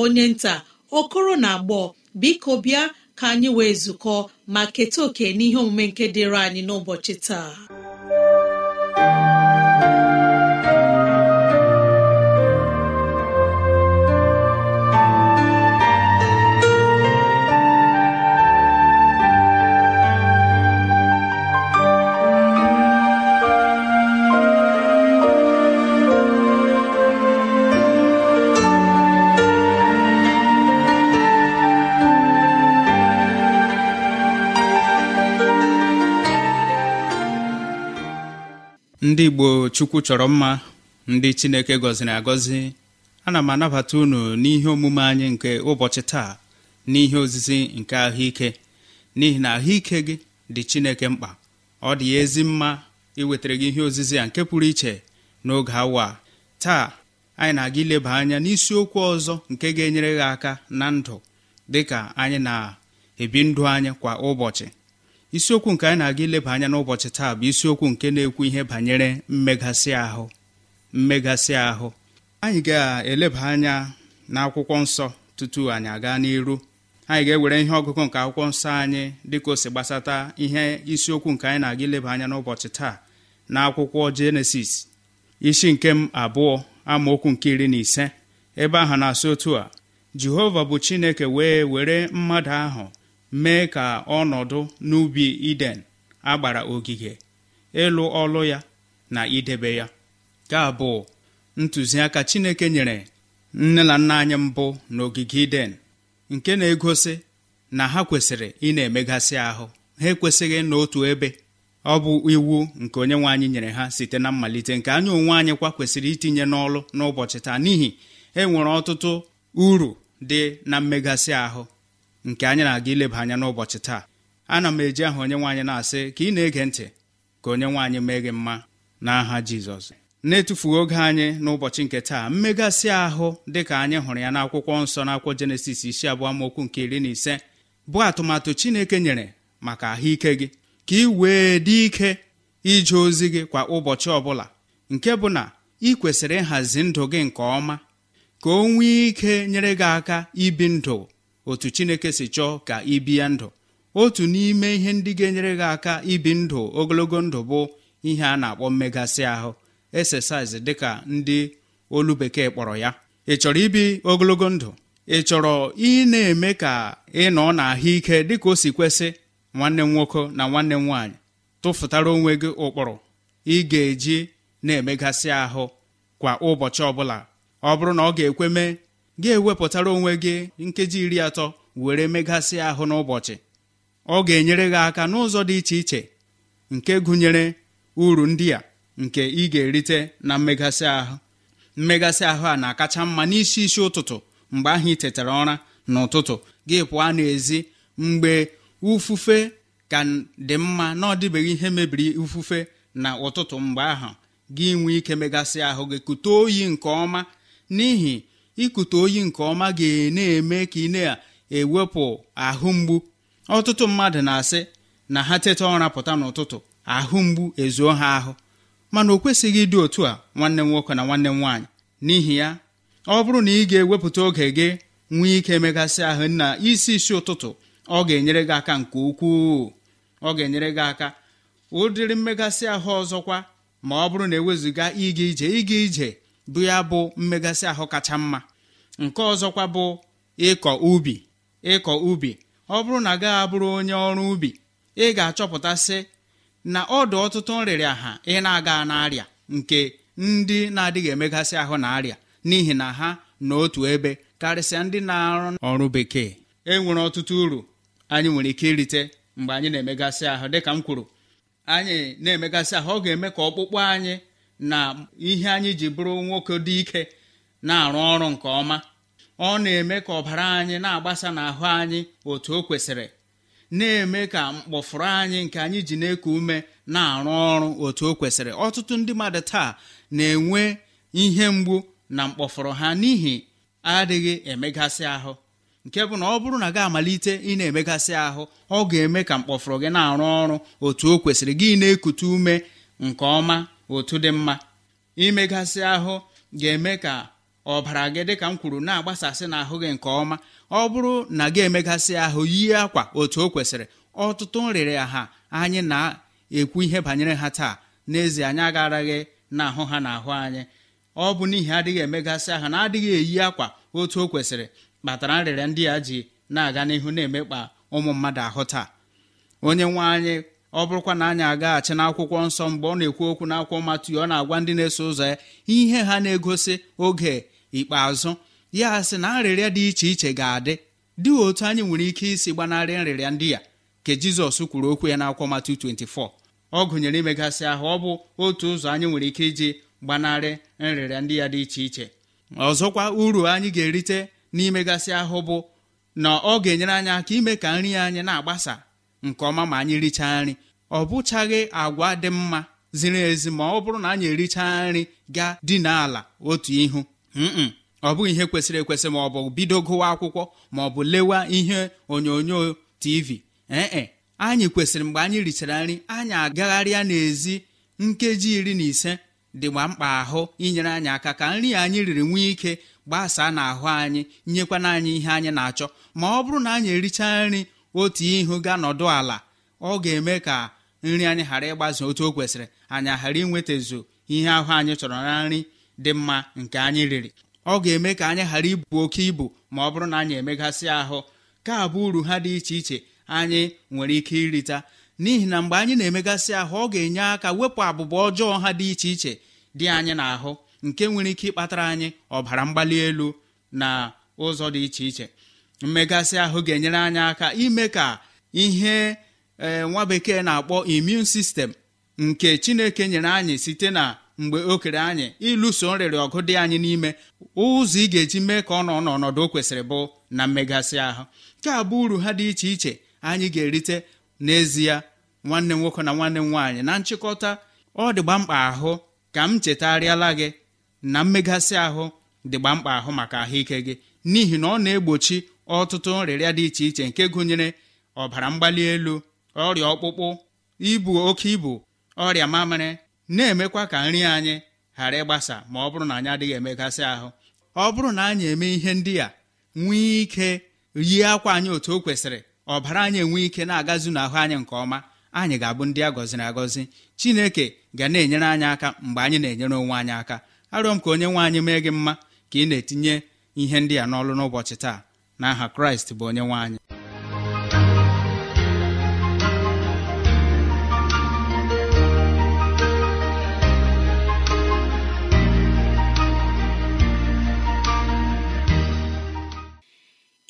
onye nta okoro na agbọ biko bịa ka anyị wee zukọ ma keta oke n'ihe omume nke dịrị anyị n'ụbọchị taa ndị igbo chukwu chọrọ mma ndị chineke gọziri agọzi ana m anabata unu n'ihe omume anyị nke ụbọchị taa n'ihe ozizi nke ahụike n'ihi na ahụike gị dị chineke mkpa ọ dị ya ezi mma iwetara gị ihe ozizi a nke pụrụ iche n'oge awa taa anyị na-aga ileba anya n'isiokwu ọzọ nke ga-enyere gị aka na ndụ dịka anyị na-ebi ndụ anyị kwa ụbọchị isiokwu nke anyị na-aga ileba anya n'ụbọchị taa bụ isiokwu nke na-ekwu ihe banyere mmegasị ahụ mmegasị ahụ anyị ga-eleba anya n'akwụkwọ nsọ tutu anyị aga n'iru anyị ga-ewere ihe ọgụgụ nke akwụkwọ nsọ anyị dịka o si gbasata ihe isiokwu nke anyị na-aga ileba anya n'ụbọchị taa na akwụkwọ jenesis isi nke m abụọ amaokwu nke iri na ise ebe ahụ na-asị otu a jehova bụ chineke wee were mmadụ ahụ mee ka ọnọdụ n'ubi iden agbara ogige ịlụ ọlụ ya na idebe ya ka bụ ntụziaka chineke nyere nne na nna anyị mbụ n'ogige iden nke na-egosi na ha kwesịrị ị na-emegasị ahụ ha ekwesịghị n'otu ebe ọ bụ iwu nke onye nwe anyị nyere ha site na mmalite nke anya onwe anyị kwa kwesịrị itinye n'ọlụ n'ụbọchị taa n'ihi enwere ọtụtụ uru dị na mmegasị ahụ nke anyị na-aga ileba anya n'ụbọchị taa ana m eji aha onye nwaanyị na-asị ka ị na-ege ntị ka onye nwaanyị mee gị mma n'aha Jizọs na-etufughị oge anyị n'ụbọchị nke taa mmegasị ahụ dịka anyị hụrụ ya n'akwụkwọ nsọ n'akwụkwọ Jenesis isi abụọ mokwu nke iri na ise bụ atụmatụ Chineke nyere maka ahụike gị ka ị wee dị ike ije ozi gị kwa ụbọchị ọbụla nke bụ na ị kwesịrị ịhazi ndụ gị nke ọma ka o nwee ike nyere gị aka ibi ndụ otu chineke si chọọ ka ị bie ndụ otu n'ime ihe ndị ga-enyere gị aka ibi ndụ ogologo ndụ bụ ihe a na-akpọ mmegasị ahụ exercise dịka ndị olu bekee kpọrọ ya ị chọrọ ibi ogologo ndụ ị chọrọ ị na-eme ka ị nọ n'ahụike dịka o si kwesị nwanne m nwoke na nwanne m nwaanyị tụfụtara onwe gị ụkpụrụ ị ga-eji na-emegasị ahụ kwa ụbọchị ọbụla ọ bụrụ na ọ ga-ekwe mee gị ewepụtara onwe gị nkeji iri atọ were megasị ahụ n'ụbọchị ọ ga-enyere gị aka n'ụzọ dị iche iche nke gụnyere uru ndị a nke ị ga-erite na mmegasị ahụ mmegasị ahụ a na-akacha mma n'isi isi ụtụtụ mgbe ahụ ị tetara ụra n'ụtụtụ gị pụọ n'ezi mgbe ufufe ka dị mma na ọ dịbeghị ihe mebiri ufufe na ụtụtụ mgbe ahụ gị nwee ike megasị ahụ gị kute oyi nke ọma n'ihi ikute oyi nke ọma ga-na-eme ka ị na-ewepụ ahụ mgbu ọtụtụ mmadụ na-asị na ha teta ụra pụta n'ụtụtụ ahụ mgbu ezuo ha ahụ mana o kwesịghị ịdị otu a nwanne m nwoke na nwanne m nwaanyị n'ihi ya ọ bụrụ na ị ga-ewepụta oge gị nwee ike megasị ahụ na isi isi ụtụtụ ọ ga-enyere gị aka nke ukwuu ọ ga-enyere gị aka ụdịrị mmegasị ahụ ọzọkwa ma ọ bụrụ na ewezuga ịga ije ịga ije bụ ya bụ mmegasị ahụ kacha mma nke ọzọkwa bụ ịkọ ubi ịkọ ubi ọ bụrụ na gaghị abụrụ onye ọrụ ubi ị ga-achọpụtasị na ọdụ ọtụtụ nrịrịa ha ị na-aga n'arịa nke ndị na-adịghị emegasị ahụ na arịa n'ihi na ha n'otu ebe karịsịa ndị na-arụ ọrụ bekee e nwere ọtụtụ uru anyị nwere ike irite mgbe anyị na-emegasị ahụ dịka m kwuru anyị na-emegasị ahụ ọ ga-eme ka ọkpụkpụ anyị na ihe anyị ji bụrụ nwoke dị ike na-arụ ọrụ nke ọma ọ na-eme ka ọbara anyị na-agbasa n'ahụ anyị otu o kwesịrị na-eme ka mkpọfụrụ anyị nke anyị ji na-eku ume na-arụ ọrụ otu o kwesịrị ọtụtụ ndị mmadụ taa na-enwe ihe mgbu na mkpọfụrụ ha n'ihi adịghị emegasị ahụ nke bụ na ọ bụrụ na gị amalite ị na-emegasị ahụ ọ ga-eme ka mkpọfụrụ gị na-arụ ọrụ otu o kwesịrị gị na-ekute ume nke ọma otu dị mma imegasị ahụ ga-eme ka ọbara gị dị ka m kwuru na-agbasasị n'ahụ gị nke ọma ọ bụrụ na gị emegasị ahụ yie akwa otu o kwesịrị ọtụtụ nrịrị ha anyị na-ekwu ihe banyere ha taa n'ezie anyị agaraghị n'ahụ ha na ahụ anyị ọ bụ n'ihi adịghị emegasị ahụ na adịghị eyi akwa otu o kwesịrị kpatara nrịrịa ndị a ji na-aga n'ihu na-emekpa ụmụ mmadụ ahụ taa onye nwe anyị ọ bụrụkwa na anyị agaghachi n'akwụkwọ nsọ mgbe ọ na-ekwu okwu n'akwụkwọ Matiu ọ na-agwa ndị na-eso ụzọ ya ihe ha na-egosi oge ikpeazụ ya sị na nrịrịa dị iche iche ga-adị dị otu anyị nwere ike isi gbanarị nrịrịa ndị ya ka Jizọs kwuru okwu ya n'akwụkwọ Matiu 24 ọ gụnyere imegasị ahụ ọ bụ otu ụzọ anyị nwere ike iji gbanarị nrịrịa ndị ya dị iche iche ọzọkwa uru anyị ga-erite n'imegasị ahụ bụ na ọ ga-enyere anyị aka ime ka nri anyị na-agbasa nke ọma ma anyị richaa nri ọ bụchaghị agwa dị mma ziri ezi ma ọ bụrụ na anyị ericha nri gaa dị n'ala otu ihu ọ bụghị ihe kwesịrị ekwesị ma ọ bụ bido gụwa akwụkwọ ma ọ bụ lewa ihe onyonyo tv ee anyị kwesịrị mgbe anyị richara nri anyị agagharịa n'ezi nkeji iri na ise dịgba mkpa ahụ inyere anyị aka ka nri anyị riri nwee ike gbasaa n'ahụ anyị nyekwana anyị ihe anyị na-achọ ma ọ bụrụ na anyị ericha nri otu ihu ga nọdụ ala ọ ga-eme ka nri anyị ghara ịgbaze otu o kwesịrị anyị ghara ezo ihe ahụ anyị chọrọ na nri dị mma nke anyị riri ọ ga-eme ka anyị ghara ibu oke ibu ma ọ bụrụ na anyị emegasị ahụ ka abụ uru ha dị iche iche anyị nwere ike irita n'ihi na mgbe anyị na-emegasị ahụ ọ ga-enye aka wepụ abụba ọjọọ ha dị iche iche dị anyị n'ahụ nke nwere ike ịkpatara anyị ọbara mgbali elu na ụzọ dị iche iche mmegasị ahụ ga-enyere anyị aka ime ka ihe ee eh, nwa bekee na-akpọ imun sistem nke chineke nyere anyị site na mgbe o kere anyị ịlụso nrịrị ọgụ dị anyị n'ime ụzọ ị ga-eji mee ka ọ nọ n'ọnọdụ o kwesịrị bụ na mmegasị ahụ nke a bụ uru ha dị iche iche anyị ga-erite n'ezie nwanne nwoke na nwanne m nwaanyị na nchịkọta ọ dịgba mkpa ahụ ka m chetarịala gị na mmegasị ahụ dịgba mkpa ahụ maka ahụike gị n'ihi na ọ na-egbochi ọtụtụ nrịrịa dị iche iche nke gụnyere ọbara mgbali elu ọrịa ọkpụkpụ ibu oke ibu ọrịa mamịrị na-emekwa ka nri anyị ghara ịgbasa ma ọ bụrụ na anyị adịghị emegasị ahụ ọ bụrụ na anyị eme ihe ndị a nwee ike yie akwa anyị otu o kwesịrị ọbara anyị enwee ike na-agazu n'ahụ anyị nke ọma anyị ga-abụ ndị a gọziri agọzi chineke ga na-enyere anyị aka mgbe anyị na-enyere onwe anyị aka arịọ m ka onye nwe anyị mee gị mma ka ị na-etinye ihe ndị a n'ọlụ n'ụbọchị taa Na aha kraịst bụ onye nwe anyị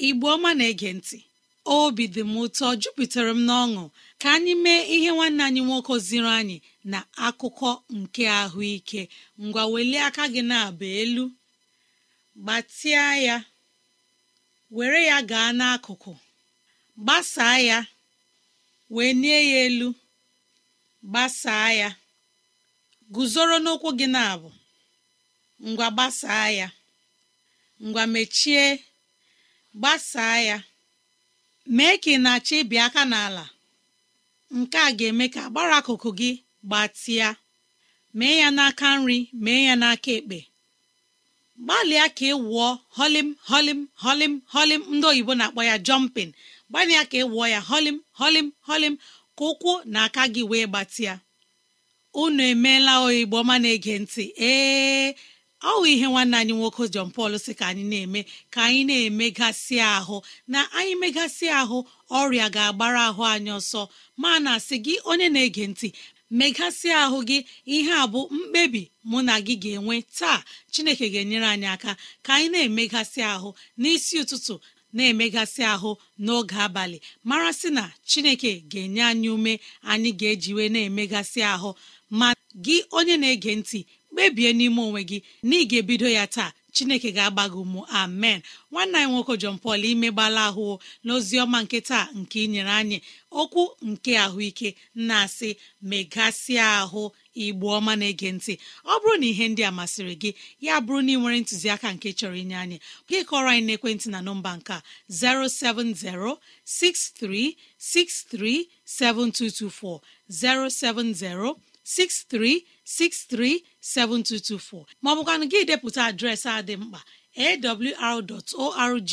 igbo ọma na-ege ntị obi dị m ụtọ jupụtara m n'ọṅụ ka anyị mee ihe nwanne anyị nwoke ziri anyị na akụkọ nke ahụike ngwa welie aka gị na-aba elu gbatịa ya were ya gaa n'akụkụ gbasaa ya wee nie ya elu gbasaa ya guzoro n'ụkwụ gị na-abụ ngwa gbasaa ya ngwa mechie gbasaa ya mee ka ị na-achọ ịbị aka n'ala nke a ga-eme ka agbara akụkụ gị gbatịa mee ya n'aka nri mee ya n'aka ekpe gbalịa ka ị wụọ holim holim holim holim ndị oyibo na-akpọ ya jọmpin gbalịa ka ị wụọ ya holim holim holim ka ụkwụ na aka gị wee gbatịa unu emeela oyibo ma na-ege ntị ee ọ hụ ihe nwanne anyị nwoke John Paul si ka anyị na-eme ka anyị na-emegasị ahụ na anyị megasị ahụ ọrịa ga-agbara ahụ anyị ọsọ ma na asị gị onye na-ege ntị megasị ahụ gị ihe a bụ mkpebi mụ na gị ga-enwe taa Chineke ga-enyere anyị aka ka anyị na-emegasị ahụ n'isi ụtụtụ na-emegasị ahụ n'oge abalị mara sị na Chineke ga-enye anyị ume anyị ga-ejiwe na-emegasị ahụ ma gị onye na-ege ntị kpebie n'ime onwe gị na ị ga-ebido ya taa chineke ga-agba gị ụmụ amen nwanne anyị nwoke jon Paul imegbala ahụ n'ozi ọma nke taa nke inyere anyị okwu nke ahụike na-asị megasịa ahụ igbu ọma na-ege ntị ọ bụrụ na ihe ndị a masịrị gị ya bụrụ na ị nwere ntụziaka nke chọrọ inye anyị gị kọrọ anyị n'ekwentị na nọmba nke a 637224 maọbụkwanụ gị depụta adreesị a dị mkpa awr.org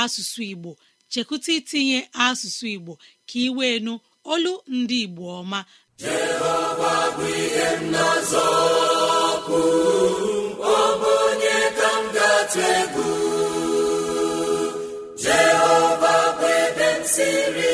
asụsụ Igbo chekwụta itinye asụsụ Igbo ka ị wee nụ olu ndị Igbo ọma Jehova bụ ebe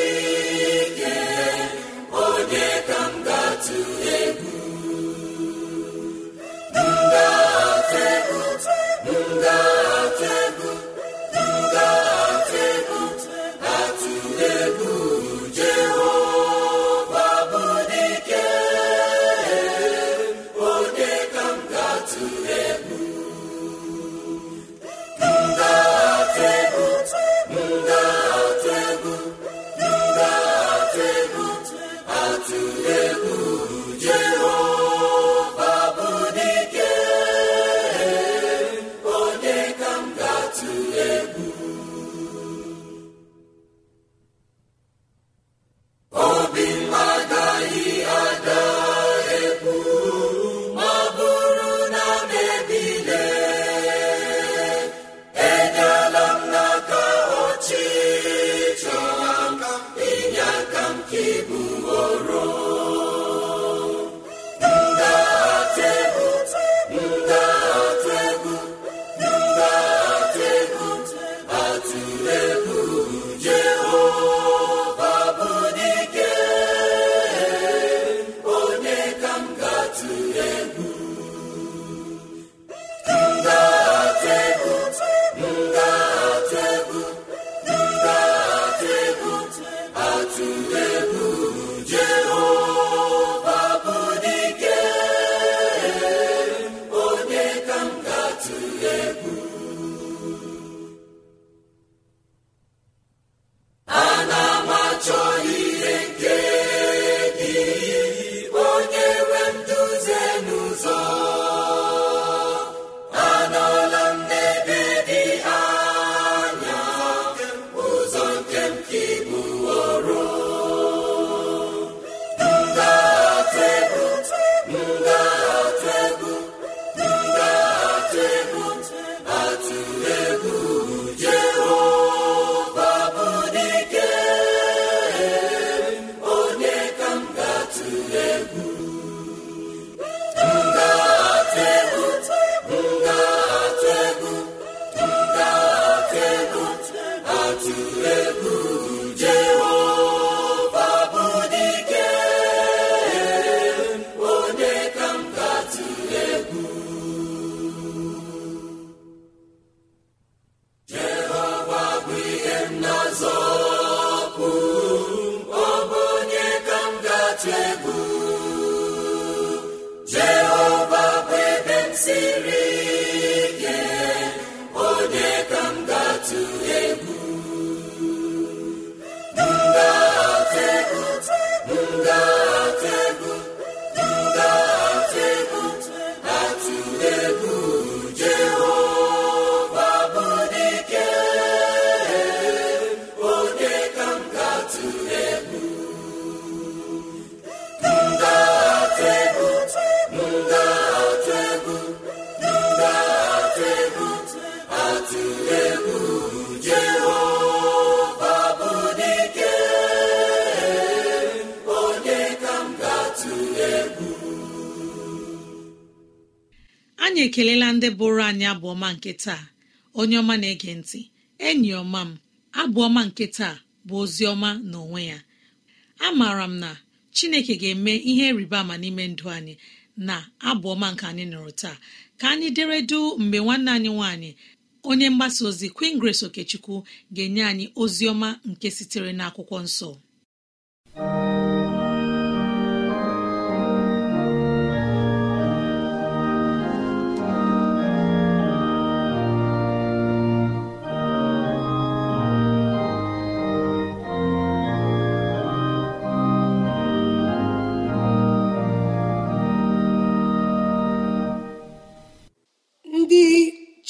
anyị ekelela ndị bụrụ anyị abụọma nke taa onye ọma na-ege ntị enyi ọma m abụọma nke taa bụ ozi ọma na onwe ya amaara m na chineke ga-eme ihe rịba ama n'ime ndụ anyị na abụọma nke anyị nụrụ taa ka anyị dere du mgbe nwanne anyị nwanyị onye mgbasa ozi Queen Grace Okechukwu ga-enye anyị ozi ọma nke sitere n'akwụkwọ nsọ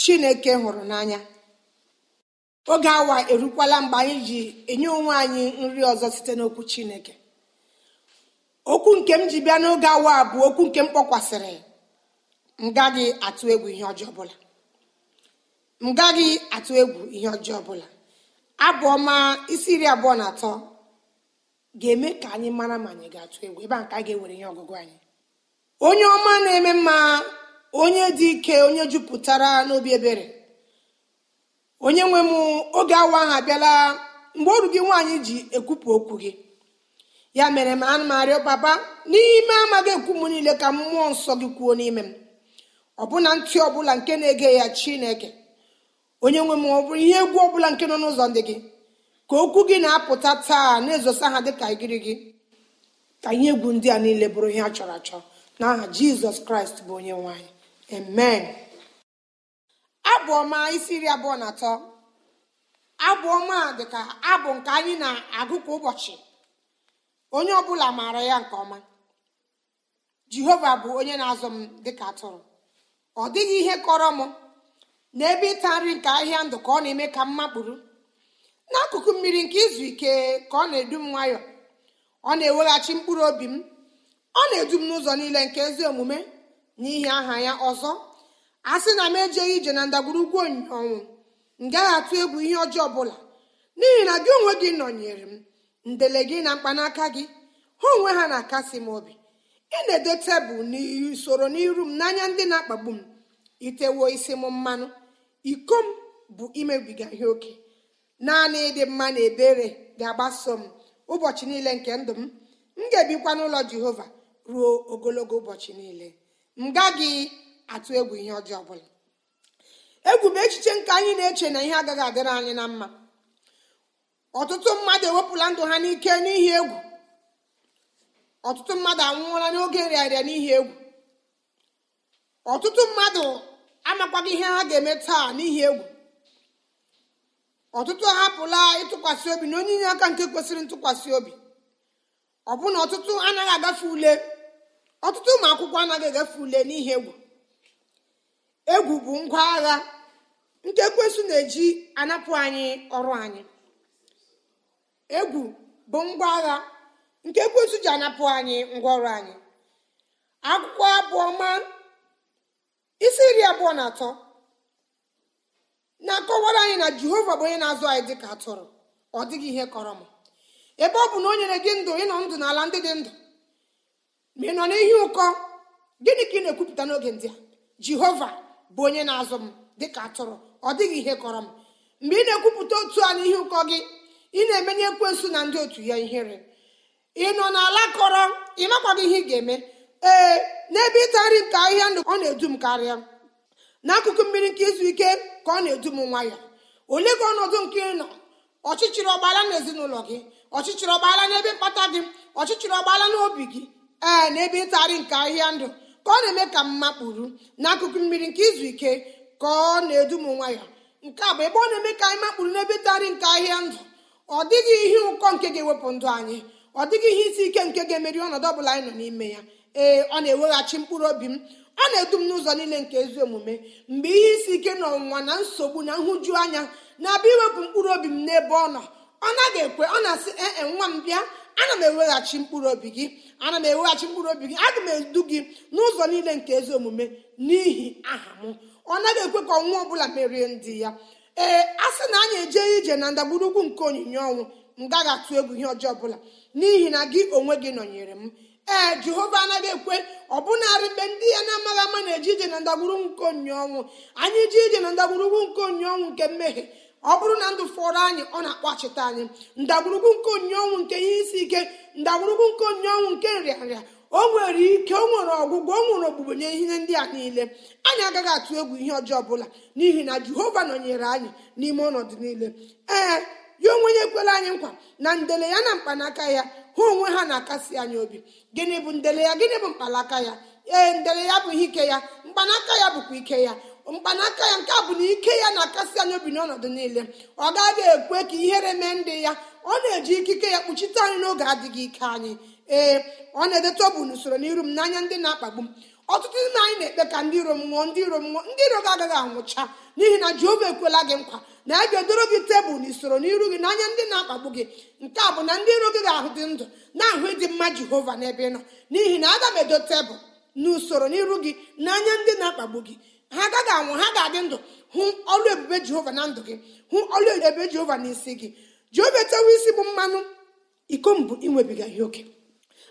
chineke hụrụ n'anya oge awa erukwala mgbe anyị ji enye onwe anyị nri ọzọ site n'okwu chineke okwu nke m ji bịa n'oge awa bụ okwu nke m kpọkwasịrị m gaghị atụ egwu ihe ọjọọ ọbụla m gaghị atụ egwu ihe ọjọọ ọbụla abụ isi iri abụọ na atọ ga-eme ka anyị mara ma anyị ga-atụ egwu ebe a ka a ga-ewere ihe ọgụgụ anyị onye ọma na-eme mma onye dị ike onye jupụtara n'obi ebere onye nwe m oge awa ahụ abịala mgbe ọrụ gị nwaanyị ji ekwupụ okwu gị ya mere m anụ m arịọ papa n'ime amaghị ekwu m niile ka mmụọ nsọ gị kwuo n'ime m ọbụna ntị ọbụla nke na-ege ya chineke onye nwe m ọ bụrụ ihe egwu ọbụla nke nọ n'ụzọ ndị gị ka okwu gị na-apụta taa na-ezosa ha dịka igiri gị ka ihe egwu ndị a niile bụrụ ihe a chọrọ achọ n'aha jizọs kraịst bụ onye nwaanyị amen abụ ọma isi iri abụọ na atọ abụ ọma dịka abụ nke anyị na-agụ kwa ụbọchị onye ọbụla maara ya nke ọma jehova bụ onye na-azụ m dịka atụrụ ọ dịghị ihe kọrọ m n'ebe ịta nri nke ahịa ndụ ka ọ na-eme ka m makpụrụ n'akụkụ mmiri nke izu ike ka ọ na-edu m nwayọọ ọ na-eweghachi mkpụrụ obi m ọ na-edu m n'ụzọ niile nke ezi omume n'ihi aha ya ọzọ a sị na m ejeghị ije na ndagwurugwu ọnwụ m gaghị atụ egwu ihe ọjọọ ọbụla n'ihi na gị onwe gị nọnyere m ndele gị na mkpanaka gị ha onwe ha na-akasi m obi ị na-ede tebụl n'usoro n'iru m n'anya ndị na-akpagbu m itewo isi m mmanụ iko m bụ imebiga ihe oke naanị ịdị mma na ebere ga-agbaso m ụbọchị niile nke ndụ m m ga-ebikwa n'ụlọ jehova ruo ogologo ụbọchị niile m gaghị atụ egwu ihe ọjọọ ọbụla egwu bụ echiche nke anyị na-eche na ihe agaghị adịrị anyị na mma ọtụtụ mmadụ ewepụla ndụ ha n'ike n'ihi egwu ọtụtụ mmadụ anwụọla n'oge nrịarịa n'ihi egwu ọtụtụ mmadụ amakwaghị ihe ha ga-eme taa n'ihi egwu ọtụtụ ahapụla ịtụkwasị obi na onye inye aka nke kwesịrị ntụkwasị obi ọbụna ọtụtụ anaghị agafe ule ọtụtụ ụmụ akwụkwọ anaghị egafe ule n'ihi egwu egwu bụ ngwa agha nke kwesụ na-eji anapụ anyị ọrụ anyị egwu ji anapụ anyị ngwa ọrụ anyị akwụkwọ abụọ ma isi iri abụọ na atọ na-akọwara anyị na jehova bụ onye na-azụ anyị dịka atụrụ ọ dịghị ihe kọrọ m ebe ọ bụ na o nyere gị ndụ ịnọ ndụ n'ala ndị dị ndụ ma ị nọ n'ihi ụkọ gịnị ka ị na-ekwupụta n'oge ndị a jehova bụ onye na-azụ m dịka atụrụ ọ dịghị ihe kọrọ m mgbe ị na-ekwupụta otu a n'ihi ụkọ gị ị na-emenye ekwensu na ndị otu ya ihere ị nọ n'ala kọrọ ị makwaghị ihe ị ga-eme ee n'ebe ịta nri nke ahịhịa ndụ ọ na-edu m karịa n'akụkụ mmiri nke izu ike ka ọ na-edu m nwa ya olee ka ọnọdụ nke ị nọ ọchịchịrị ọgbaala na ezinụlọ gị ọchịchịrị ọgbaala n'ebe mkpata gị ọchịchịrị ọgbaala n'obi gị ee n'ebe ịtagharị nke ahịa ndụ ka ọ na-eme ka mma kpuru n'akụkụ mmiri nke izu ike ka ọ na-edu m nwa ya nke a bụ ebe ọ na-eme ka anyị makpuru n'ebe ịtagharị nke ahịa ndụ ọ dịghị ihe ụkọ nke ga-ewepụ ndụ anyị ọ dịghị ihe isi ike nke ga-emeri ọnọdụ ọbụla anyị nọ n'ime ya ee ọ na-eweghachi mkpụrụ obi m ọ na-edu m n'ụzọ niile nke ezi omume mgbe ihe isi ike na ọnwụnwa na nsogbu na nhụju anya na-abịa iwepụ mkpụrụ obi m n'ebe ọ nọ ọ naghị ekwe ọ na-asị ee nwa m bịa ana m eweghachi mkpụrụ obi gị ana m eweghachi mkpụrụ obi gị aga m edu gị n'ụzọ niile nke ezi omume n'ihi aha m ọ naghị ekwe ka ọnwụ ọbụla merie ndị ya ee a sị na anyị eje ije na ndagburugwu nke onyinye ọnwụ m gaghị atụ egwu ihe ọjọọ ọbụla n'ihi na gị onwe gị nọnyere m ee jehova anaghị ekwe bụnarị mgbe ndị ya na-amaghị ama na-eje ije na ndagburugwu nke onyinye ọnwụ anyị ije ije na ndagburugwu nke onyinye ọnwụ nke mmehie ọ bụrụ na ndụ fọrọ anyị ọ na-akpọchite anyị ndagwurugwu nke onye ọnwụ nke ihe isi ike ndagwurugwu nke onye ọnwụ nke nrịanrịa o nwere ike o nwere ọgwụgwọ o nwere ogbugbo nye ihe ndị a niile anyị agaghị atụ egwu ihe ọjọọ ọbụla n'ihi na jehova nọnyere anyị n'ime ọnọdụ niile ee ya onwe ya ekwela anyị nkwa na ndele ya na mkpanaka ya ha onwe ha na-akasi anyị obi gịnị bụ ndele ya gịnị bụ mkpanaka ya ee ndele ya bụ ihe ike ya mkpanaka ya bụkwa ike ya mkpanaka ya nke a bụ na ike ya na-akasị anyị obi n'ọnọdụ niile ọ gaghị ekwe ka ihere mee ndị ya ọ na-eji ikike ya kpuchite anyị n'oge adịghị ike anyị ee ọ na ọ bụ n'usoro n'iru m n'anya ndị na-akpagbu m ọtụtụ ndị anyị na-ekpe ka ndị iro m nwụọ ndị iro m nwụọ ndị iro gị agaghị anwụcha n'ihi na jehova ekwela gị nkwa na ya ga-edoro gị tebụl na usoro n'iru gị n'anya ndị na-akpagbu gị nke a bụ na ndị iro gị ga-ahụ dị ndụ na-ahụ ịdị mma jehova n'ebe ị nọ n'ihi na aga m edo tebụl na n'iru gị n'anya ndị na-akpagbu gị ha agaghị anwụ ha ga-adị ndụ hụ ọlụ ebube jehova na ndụ gị hụ ọlụ ebube jehova na isi gị jehova etewe isi bụ mmanụ iko mbụ ịnwebiga ihe oke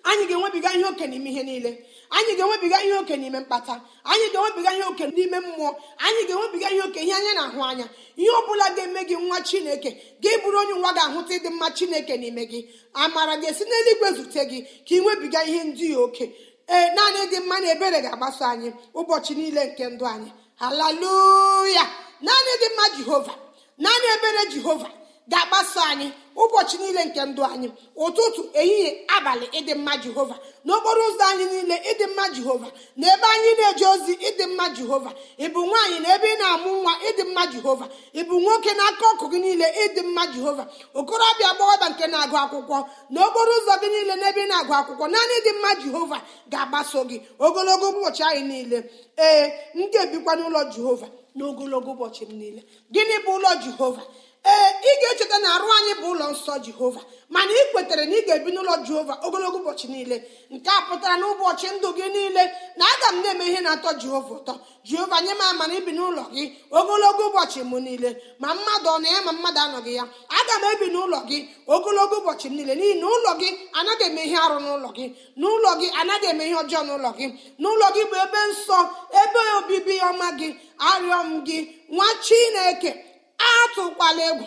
anyị ga-enwebiga ihe oke n'ime ihe niile anyị ga-enwebiga ihe oke n'ime mkpata anyị ga-enwebiga ihe oke n'ime mmụọ anyị ga-enwebiga ihe oke ihe anya na-ahụ anya ihe ọ bụla ga-eme gị nwa chineke ga-eburu onye nwa ga-ahụta ịdị mma chineke n'ime gị amara ga-esi n'eluigwe zute gị ka ị nwebiga ihe ndị oke ee naanị dị mma na ebere ga-agbaso anyị ụbọchị niile nke ndụ anyị haleluya naanị dị mma jehova naanị ebere jehova ga-agbaso anyị ụbọchị niile nke ndụ anyị ụtụtụ ehihie abalị ịdị mma jehova n'okporo ụzọ anyị niile ịdị mma jehova na ebe anyị na-eje ozi ịdị mma jehova ịbụ nwaanyị na ebe ị na-amụ nwa ịdị mma jehova ịbụ nwoke na aka ọkụ gị niile ịdị mma jehova okorobịa agbọghọbịa nke na-agụ akwụkwọ na okporo ụzọ gị niile na ebe ị na-agụ akwụkwọ naanị ịdị mma jehova ga-agbaso gị ogologo ụbọchị anyị niile ee m ga-ebikwa n'ụlọ jehova n'ogologo ụbọchị m niile gịnị bụ ụlọ jehova ee ị ga-echeta na arụ anyị bụ ụlọ nsọ jehova mana ị kwetere na ị ga-ebi n'ụlọ jehova ogologo ụbọchị niile nke a pụtara na ụbọchị ndụ gị niile na aga m na-eme ihe na-atọ jehova ụtọ jehova nye m ama na ibi n'ụlọ gị ogologo ụbọchị m niile ma mmadụ ọ na ya ma mmadụ anọghị ya aga m ebi n'ụlọ gị ogologo ụbọchị m niile n'ihi na ụlọ gị anaghị eme ihe arụ n'ụlọ gị n'ụlọ gị anaghị eme ihe ọjọọ n'ụlọ gị n'ụlọ gị bụ ebe nsọ ebe obibi ọma gị arịọ m gị nwa chineke atụkwala egwu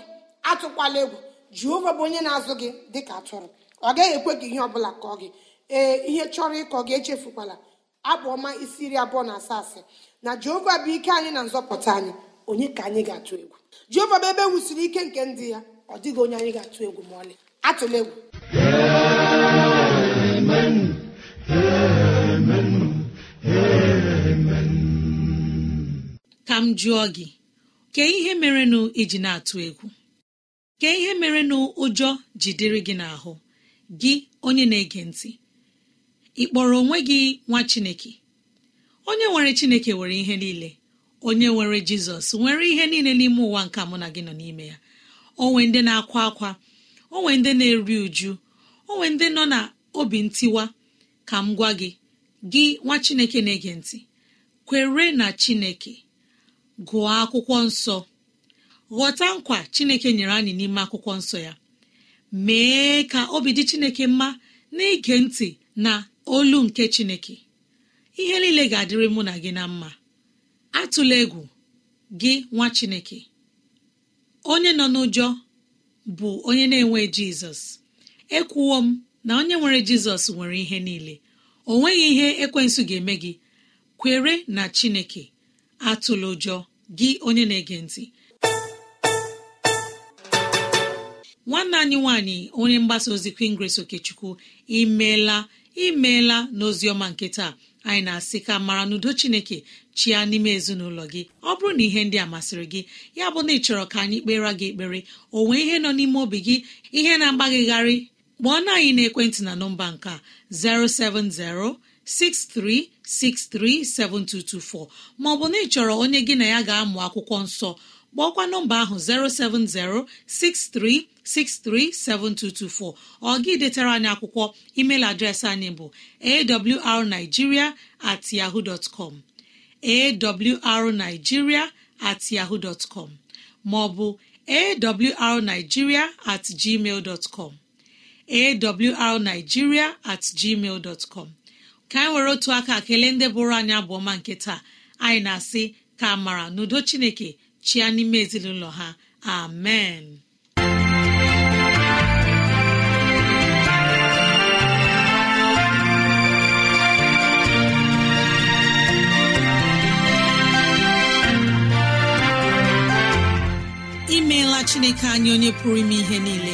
atụkwala egwu jehova bụ onye na-azụ gị dịka atụrụ ọ gaghị ekwe gị ihe ọbụla kọọ gị ee ihe chọrọ ịkọ gị echefukwala abụ ọma isi iri abụọ na asaa asị na jehova bụ ike anyị na nzọpụta anyị onye ka anyị ga-atụ egwu jehova bụ ebe e wusiri ike nke ndị ya ọ dịghị onye anyị ga-atụ egwu ma ọlị atụla egwu ka m jụọ gị kee ihe merenụ iji na-atụ egwu kee ihe merenụ ụjọ jidere gị n'ahụ gị onye na-ege ntị ị kpọrọ onwe gị nwa chineke onye nwere chineke nwere ihe niile onye nwere jizọs nwere ihe niile n'ime ụwa nke mụ na gị nọ n'ime ya onwe ndị na-akwa akwa onwe ndị na-eri uju onwe ndị nọ na obi ntiwa ka m gwa gị gị nwa chineke na-ege ntị kwere na chineke gụọ akwụkwọ nsọ ghọta nkwa chineke nyere anyị n'ime akwụkwọ nsọ ya mee ka obi dị chineke mma n'ige ntị na olu nke chineke ihe niile ga-adịrị mụ na gị na mma atụla egwu gị nwa chineke onye nọ n'ụjọ bụ onye na-enwe jizọs ekwuwo m na onye nwere jizọs nwere ihe niile o nweghị ihe ekwensu ga-eme gị kwere na chineke atụla ụjọ gị onye na-ege ntị nwanne anyị nwanyị onye mgbasa ozi kwingres okechukwu imeela imeela n'oziọma nke taa anyị na-asị ka mara n'udo chineke chia n'ime ezinụlọ gị ọ bụrụ na ihe ndị a masịrị gị ya bụ na ị chọrọ ka anyị kpere gị ekpere o nwee ihe nọ n'ime obi gị ihe na-agbagịgharị kpọọ na anyị na ekwentị na nọmba nke 07063 637224 bụ na ị chọrọ onye gị na ya ga-amụ akwụkwọ nsọ kpọọkwa nọmba ahụ 07063637224 ọ gị detara anyị akwụkwọ email adreesị anyị bụ awrnigeria at yahoo dot com at yahoo dot maọbụ awrnigeria at gmail dot com at gmail dot com ka anyị were otu aka kelee ndị bụrụ anyị abụọma nke taa anyị na-asị ka amara n'udo chineke chia n'ime ezinụlọ ha amen imeela chineke anyị onye pụrụ ime ihe niile